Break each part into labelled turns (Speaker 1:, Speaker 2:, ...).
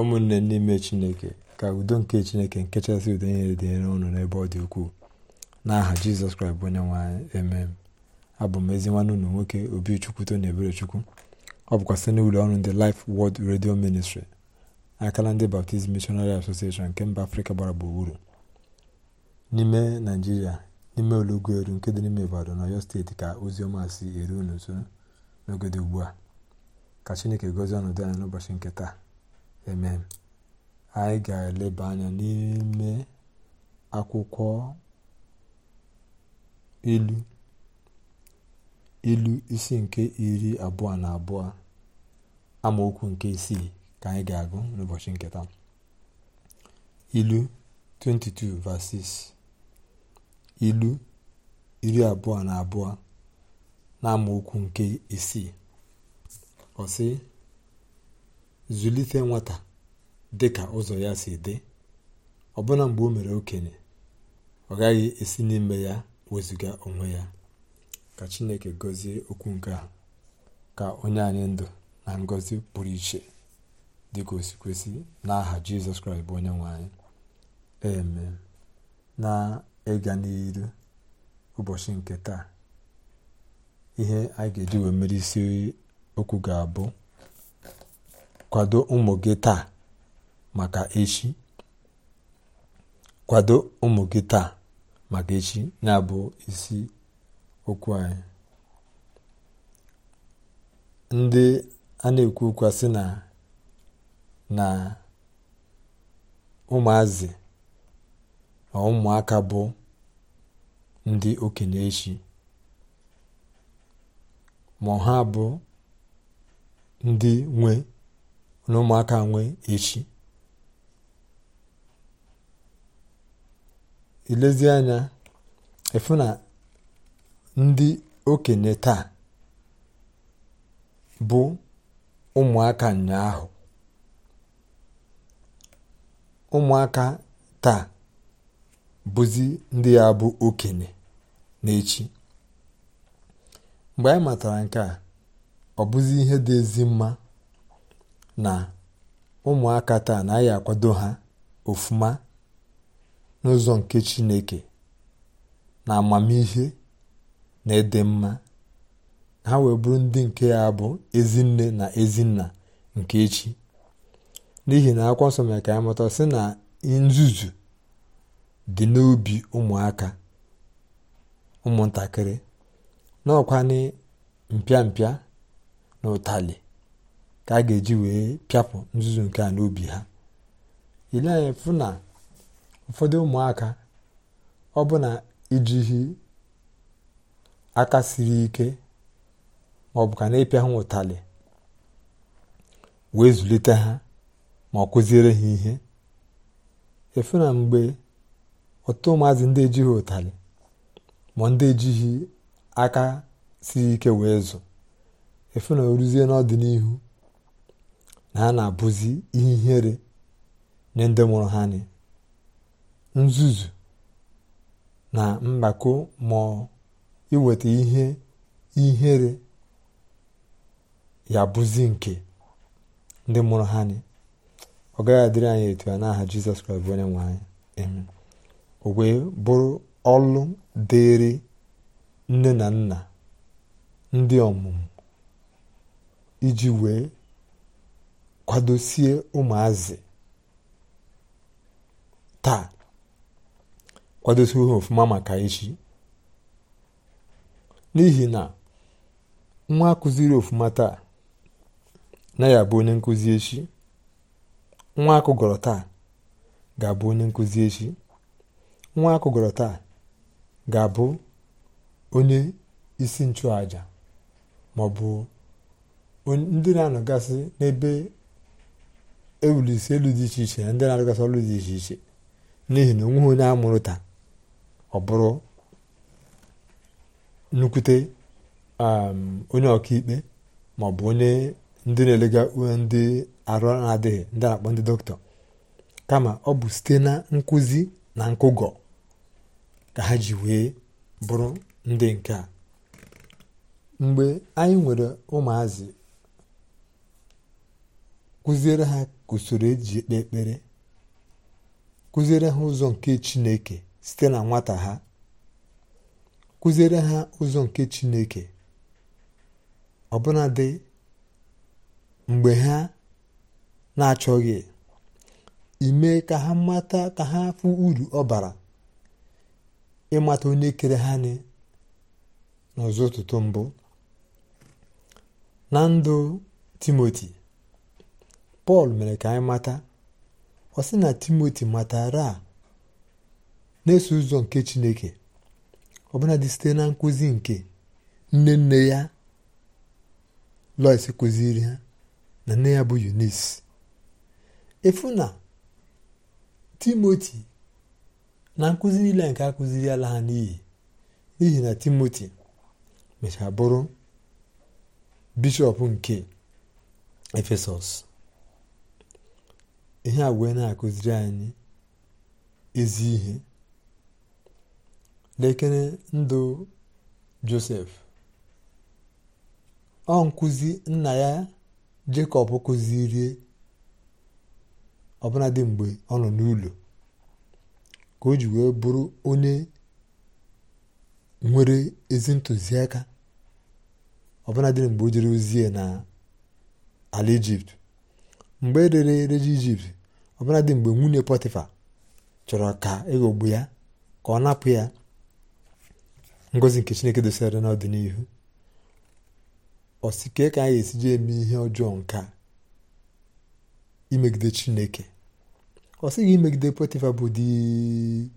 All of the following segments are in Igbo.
Speaker 1: ụmụnne n'ime chineke ka udo nke chineke nke chasị udo niile dị ụnụ n'ebe ọ dị ukwuu n'aha jizọs kraịst bụ onye nwaanyị eme abụ m ezi nwanne ụlọ nwoke obi chukwuto na ebere chukwu ọ bụkwa site n'ụlọ ọrụ ndị Life World redio ministri akala ndị Baptist Missionary asosieshon nke mba afrịka gbara gburugburu n'ime naijiria n'ime olugoelu nke dị n'ime ibadan na ọyọ steeti ka ozi si eru unu n'oge dị ugbu a ka chineke gozie ọnọdụ anya n'ụbọchị nke taa amen anyị ga-eleba anya n'ime akwụkwọ ilu ilu isi nke iri abụọ na abụọ amaokwu nke isii ka anyị ga-agụ n'ụbọchị nke taa ilu 22 verses ilu iri abụọ na abụọ na amaokwu nke isii ọ zụlite nwata dị ka ụzọ ya si dị ọbụna mgbe o mere okenye ọ gaghị esi n'ime ya wezụga onwe ya ka chineke gọzie okwu nke a ka onye anyị ndụ na ngọzi pụrụ iche dị ka osikwesị n'aha jizọs kraịst bụ onye nwe anyị eme na ịga n'iru ụbọchị nke taa ihe anyị ga-eji wee mere isi okwu ga-abụ kwado ụmụ gị taa maka echi kwado ụmụ gị taa maka echi na-abụ isi okwu anyị ndị a na-ekwu okwu sị na na ụmụazị na ụmụaka bụ ndị okenye echi ma ha bụ ndị nwe na ụmụaka nwee echi ilezi anya efu na ndị okenye taa bụ ụmụaka ụnyaahụ ụmụaka taa bụzi ndị ya bụ okenye n'echi mgbe anyị matara nke a ọ bụzi ihe dị ezi mma na ụmụaka taa anaghị akwado ha ofuma n'ụzọ nke chineke na amamihe na ịdị mma ha wee bụrụ ndị nke ya bụ ezinne na ezinna nke echi n'ihi na akwụkwọ nsọ mere ka anyị mụta sị na nzuzu dị n'obi ụmụaka ụmụntakịrị na mpịa mpịa na ụtalị ka a ga-eji wee pịapụ nzuzu nke a n'obi ha ile anya na ụfọdụ ụmụaka ọ bụ na aka siri ike ma ọ bụ ka na-ịpịa ha ụtalị wee zụlite ha ma ọ kụziere ha ihe efu na mgbe ọtụtụ ụmụazị ndị ejighị ụtalị ma ndị ejighị aka siri ike wee zụ efu na oruzie n'ọdịnihu na a na-abụzi ihere nye ndị mụrụ ha ni nzuzu na mgbako ma iweta ihe ihere ya bụzi nke ndị mụrụ ha ni ọ gaghị adịrị anyị etu a n'aha jizọs kraịst bụ onye nwe anyị o wee bụrụ ọlụ dịrị nne na nna ndị ọmụmụ iji wee kwadosie ụmụazị taa kwadosie ha ofụma maka echi n'ihi na nwa kụziri ofụma taa na ya bụ onye nkụzi echi nwa akụgọrọ taa ga-abụ onye nkụzi echi nwa akụgọrọ taa ga-abụ onye isi nchụaja maọbụ ndị na-anọgasị n'ebe ewulisi elu dị iche iche na ndị na-arịgasị ọrụ dị iche iche n'ihi na onweghị onye a taa ọ bụrụ nnukwute onye ọkaikpe ma ọ bụ onye ndị na-elega ndị arụ na-adịghị ndị na-akpọ ndị dọkịta kama ọ bụ site na nkụzi na nkụgọ ka ha ji wee bụrụ ndị nke a mgbe anyị nwere ụmụazị kụziere ha usoro eji ekpe ekpere kụziere ha ụzọ nke chineke site na nwata ha kụziere ha ụzọ nke chineke ọbụnadị mgbe ha na-achọghị ime ka ha mata ka ha fụ uru ọ bara ịmata onye kere ha n'ọzọ ụtụtụ mbụ na ndụ timoti pọl mere ka anyị mata ọ na timoti matara na-eso ụzọ nke chineke dị site na nkụzi nke nne nne ya lois kụziri ha na nne ya bụ yunis efu na timoti na nkụzi niile nke akụziri ala ha n'iyi n'ihi na timoti mechaa bụrụ bishọp nke efesọs ihe a wee na-akụziri anyị ezi ihe lekere ndụ josef ọ nkụzi nna ya jekọb kụzirie ọbụladị mgbe ọ nọ n'ụlọ ka o ji wee bụrụ onye nwere ezi ntụziaka ọbụladị mgbe o jere ozie na ala ijipt mgbe e rere ereji ijipt dị mgbe nwunye pọtịfa chọrọ ka ịghọgbu e ya ka ọ napụ ya ngozi nke chineke dosara n'ọdịnihu osike ka anyị esiji eme ihe ọjọọ nke imegide chineke ọ imegide pọtịfa bụ di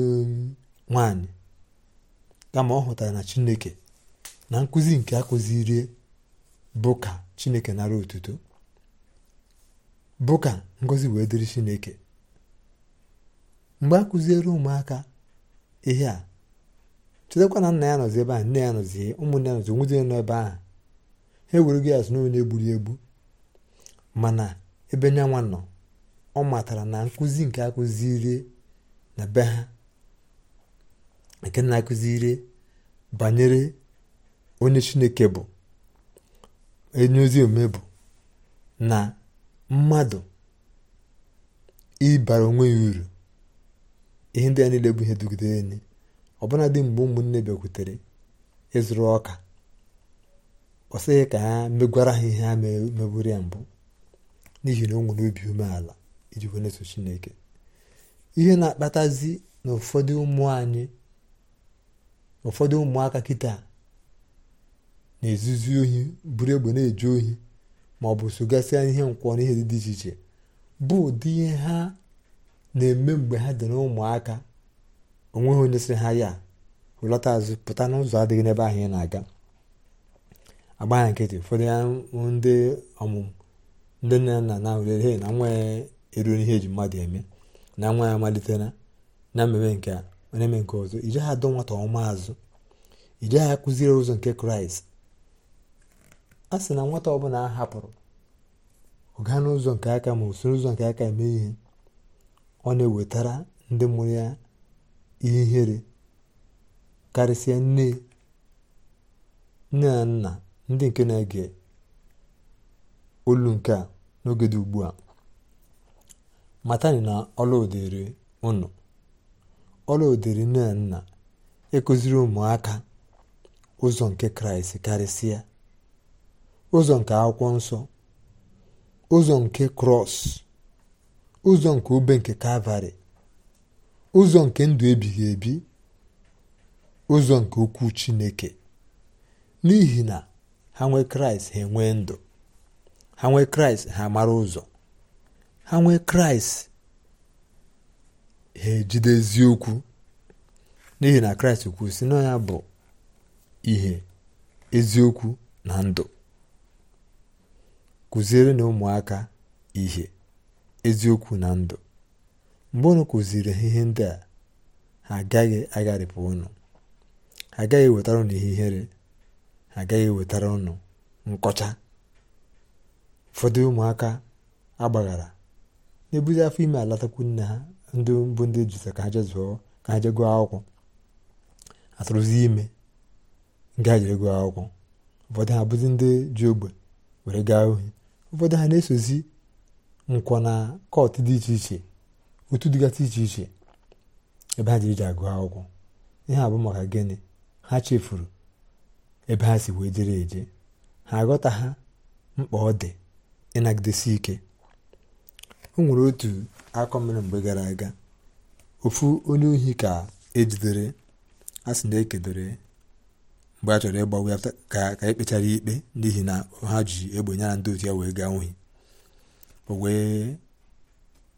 Speaker 1: um, nwanyị kama ọ hụtara na chineke na nkụzi nke akụziri bụ ka chineke nara otuto bụ ka ngọzi wee dịrị chineke mgbe a kụziere ụmụaka ihe a chetakwa na nna ya nọzi ebe ahụ nne ya nọzi ụmụnne ya nọzi onwezi nọ ebe ahụ ha ewere gị azụ n'onye egburu egbu mana ebe nyanwa nọ ọ matara na nkụzi nke akụziri na be ha nke na-akụziri banyere onye chineke bụ onye ozi omume bụ na mmadụ ịbara onwe ya uru ihe ndị a niile bụ ihe dugidere enyi ọbụna dị mgbe ụmụnne bịakwutere ịzụrụ ọka ọ sịghị ka ha megwara ha ihe ha megburu ya mbụ n'ihi na o nwere obi umeala iji wee Chineke ihe na-akpatazi na ụfọdụ ụmụ anyị ụfọdụ ụmụaka kịta na-ezuzu ohi buru egbe na-eje ohi ma ọ bụ sogasịa ihe nkwọ n'ihe dị iche iche bụ ụdị ihe ha na-eme mgbe ha dị n'ụmụaka onweghị onye sị ha ya hụlọta azụ pụta n'ụzọ adịghị n'ebe ahụ ị na-aga agbagha nkịtị ụfọdụ ya ndị ọmụmụ ndị nne nna na he na nwa ya eruo n'ihe eji mmadụ eme na nwa ya amalitela na mmemme nke a na eme nke ọzọ ije ha adọ nwata ọma azụ ije ha kụziere ụzọ nke kraịst a sị na nwata ọbụla a hapụrụ ụga n'ụzọ nke aka ma usoro ụzọ nke aka eme ihe ọ na-ewetara ndị mụrụ ya ihere karịsịa nne nne na nna ndị nke na-ege olu nke a n'oge dị ugbu a matani na ọla ụnụ ọla nne na nna ịkụziri e ụmụaka ụzọ nke kraịst karịsịa ụzọ nke akwụkwọ nsọ ụzọ nke krọs ụzọ nke ube nke kavari ụzọ nke ndụ ebighị ebi ụzọ nke ukwuu chineke n'ihi na ha nwee kraịst ha enwee ndụ ha nwee kraịst ha mara ụzọ ha nwee kraịst ha ejide eziokwu n'ihi na kraịst kwusi na ya bụ ihe eziokwu na ndụ kụziere na ụmụaka ihe eziokwu na ndụ mgbe unu kụziri ha ihe ndị a ha agaghị agharịpụ unu ha agaghị ewetara unu ihe ihere ha agaghị ewetara unu nkọcha ụfọdụ ụmụaka agbaghara na-ebuzi afọ ime alatakwu nne ha ndị mbụ ndị jụta ka ha je ka ha je gụọ akwụkwọ atụrụzi ime nga jere gụọ akwụkwọ ụfọdụ ha bụzi ndị ji ogbe were gaa ohi ụfọdụ ha na-esozi nkwọ na kọt dị iche iche otu dịgasị iche iche ebe ha jiri ji agụ akwụkwọ ihe abụ maka gịnị ha chefuru ebe ha si wee jere eje ha aghọta ha mkpa ọ dị ịnagidesi ike o nwere otu akọ mgbe gara aga ofu onye ohi ka ejidere a sị na ekedore mgbe a chọrọ ịgbanwe ya ka ekpechara e kpechara ikpe n'ihi na ha ji egbe ya na ndị otu ya wee gaa nwunye o wee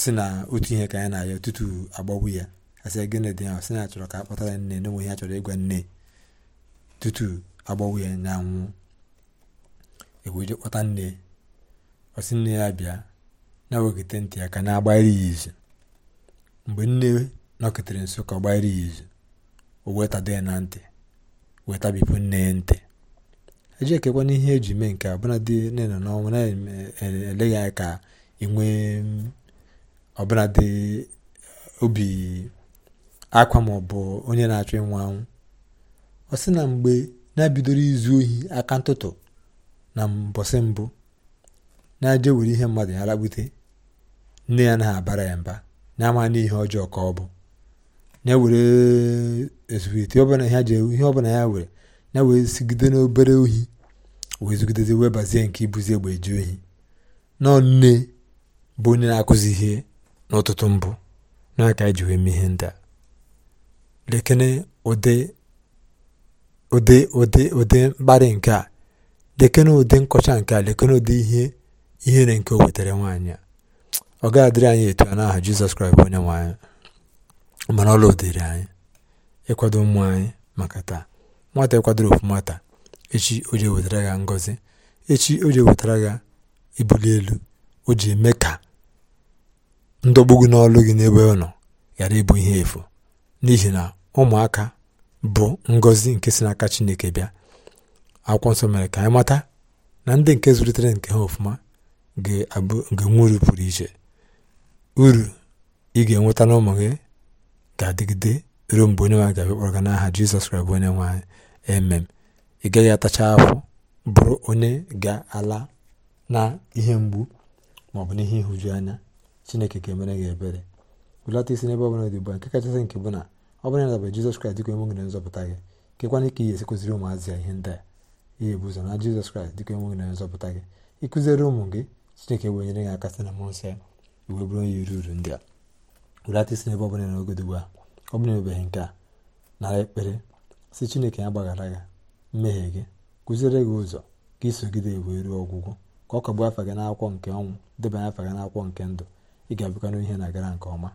Speaker 1: si na otu ihe ka ya na-arịọ tutu agbagbu ya asị gịnị dị ahụ sị na achọrọ ka a ya nne n'enweghị ha chọrọ ịgwa nne tutu agbagbu ya na anwụ e kpọta nne ọsị nne ya bịa na-ewekite ntị ya ka na-agbara ya izu mgbe nne nọketere nso ka ọ gbara ya izu o wee tado ya na ntị weta bipụ nne ya ntị eji ekekwana ihe eji mee nke ọbụladị nne na n'ọnwa e, na-eleghị e, e, anya ka inwe nwee mm, dị obi akwa ma onye na-achọ ịnwa anwụ ọ sị na mgbe na-ebidoro izu ohi aka ntụtụ na mbọsị mbụ na-aje were ihe mmadụ ya lagbute nne ya naghị abara ya mba na-ama n'ihe ọjọọ ka ọ bụ na-ewere esuete ọbụla ha ji ihe ọbụla ya were na-wee sigide n'obere ohi wee zugidezi wee bazie nke ibuzi egbe eji ohi na nne bụ onye na-akụzi ihe n'ụtụtụ mbụ n'aka iji e wee mee ihe ndị a lekene ụdị ụdị ụdị ụdị mkparị nke a lekene ụdị nkọcha nke a lekene ụdị ihe ihere nke o wetara nwaanyị a ọ gaghị adịrị anyị etu a n'aha Jizọs Kraịst bụ onye nwe anyị mana ọla dịrị anyị ịkwado ụmụ anyị maka taa nwata ịkwadoro ofụma taa echi o ji ewetara ya ngọzi echi o ji ewetara ya ibuli elu o ji eme ka ndọgbu gị n'ọlụ gị n'ebe ọ nọ ghara ịbụ ihe efu n'ihi na ụmụaka bụ ngọzi nke si n'aka chineke bịa akwụkwọ nsọ mere ka anyị mata na ndị nke zụlitere nke ha ofụma ga-abụ uru pụrụ iche uru ị ga-enweta n'ụmụ gị ga-adịgide ruo mgbe onye nwaanyị ga-abịa kpọrọ n'aha jizọs kraịst onye nwaanyị emem ị gaghị atacha ahụ bụrụ onye ga-ala na ihe mgbu ma ọ bụ n'ihe ịhụju anya chineke ga-emere gị ebere belata isi n'ebe ọbụla dị ugbu a nke kachasị nke bụ na ọ bụrụ na dabara jizọs kraịst dịka enwe gị nzọpụta gị kekwana ike ị ga-esi kụziri ụmụazị ya ihe ndị a ihe bụ ụzọ na jizọs kraịst dịka ka gị na nzọpụta gị ịkụziere ụmụ gị chineke wee nyere gị aka sị na mmụọ nsọ ya iwe bụrụ onye iri uru ndị a werata isi n'ebe ọbụla n'ogodo ugbu a ọ bụla emebeghị nke a nara ekpere si chineke ya gbaghara gị mmehie gị kụziere gị ụzọ ka isogide wee ruo ọgwụgwụ ka ọ kagbuo afa gị n'akwụkwọ nke ọnwụ debanye afa gị n'akwụkwọ nke ndụ ị ga-abịakwa n'ihe na-agara nke ọma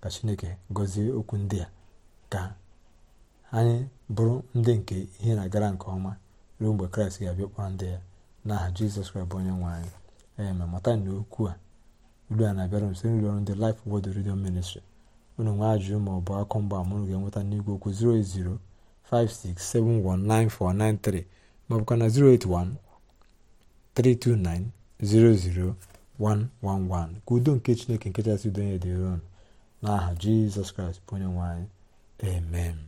Speaker 1: ka chineke gọzie okwu ndị a ka anyị bụrụ ndị nke ihe na-agara nke ọma ruo mgbe kraịst ga-abịa kpọrọ ndị ya n'aha jizọs kraịst bụ onye nwe anyị ee mata na okwu a uru a na-abịara m site n'ụlọ ọrụ ndị Life world Radio Ministry unu nwe ajụjụ ma ọ bụ akụ mgba mụrụ ga-enweta n'igwe okwu 08056719493 maọbụkwa na 08132900111 ka udo nke Chineke nke kachasị udo nye dịron n'aha Jizọs Kraịst bụ onye nwanyị amen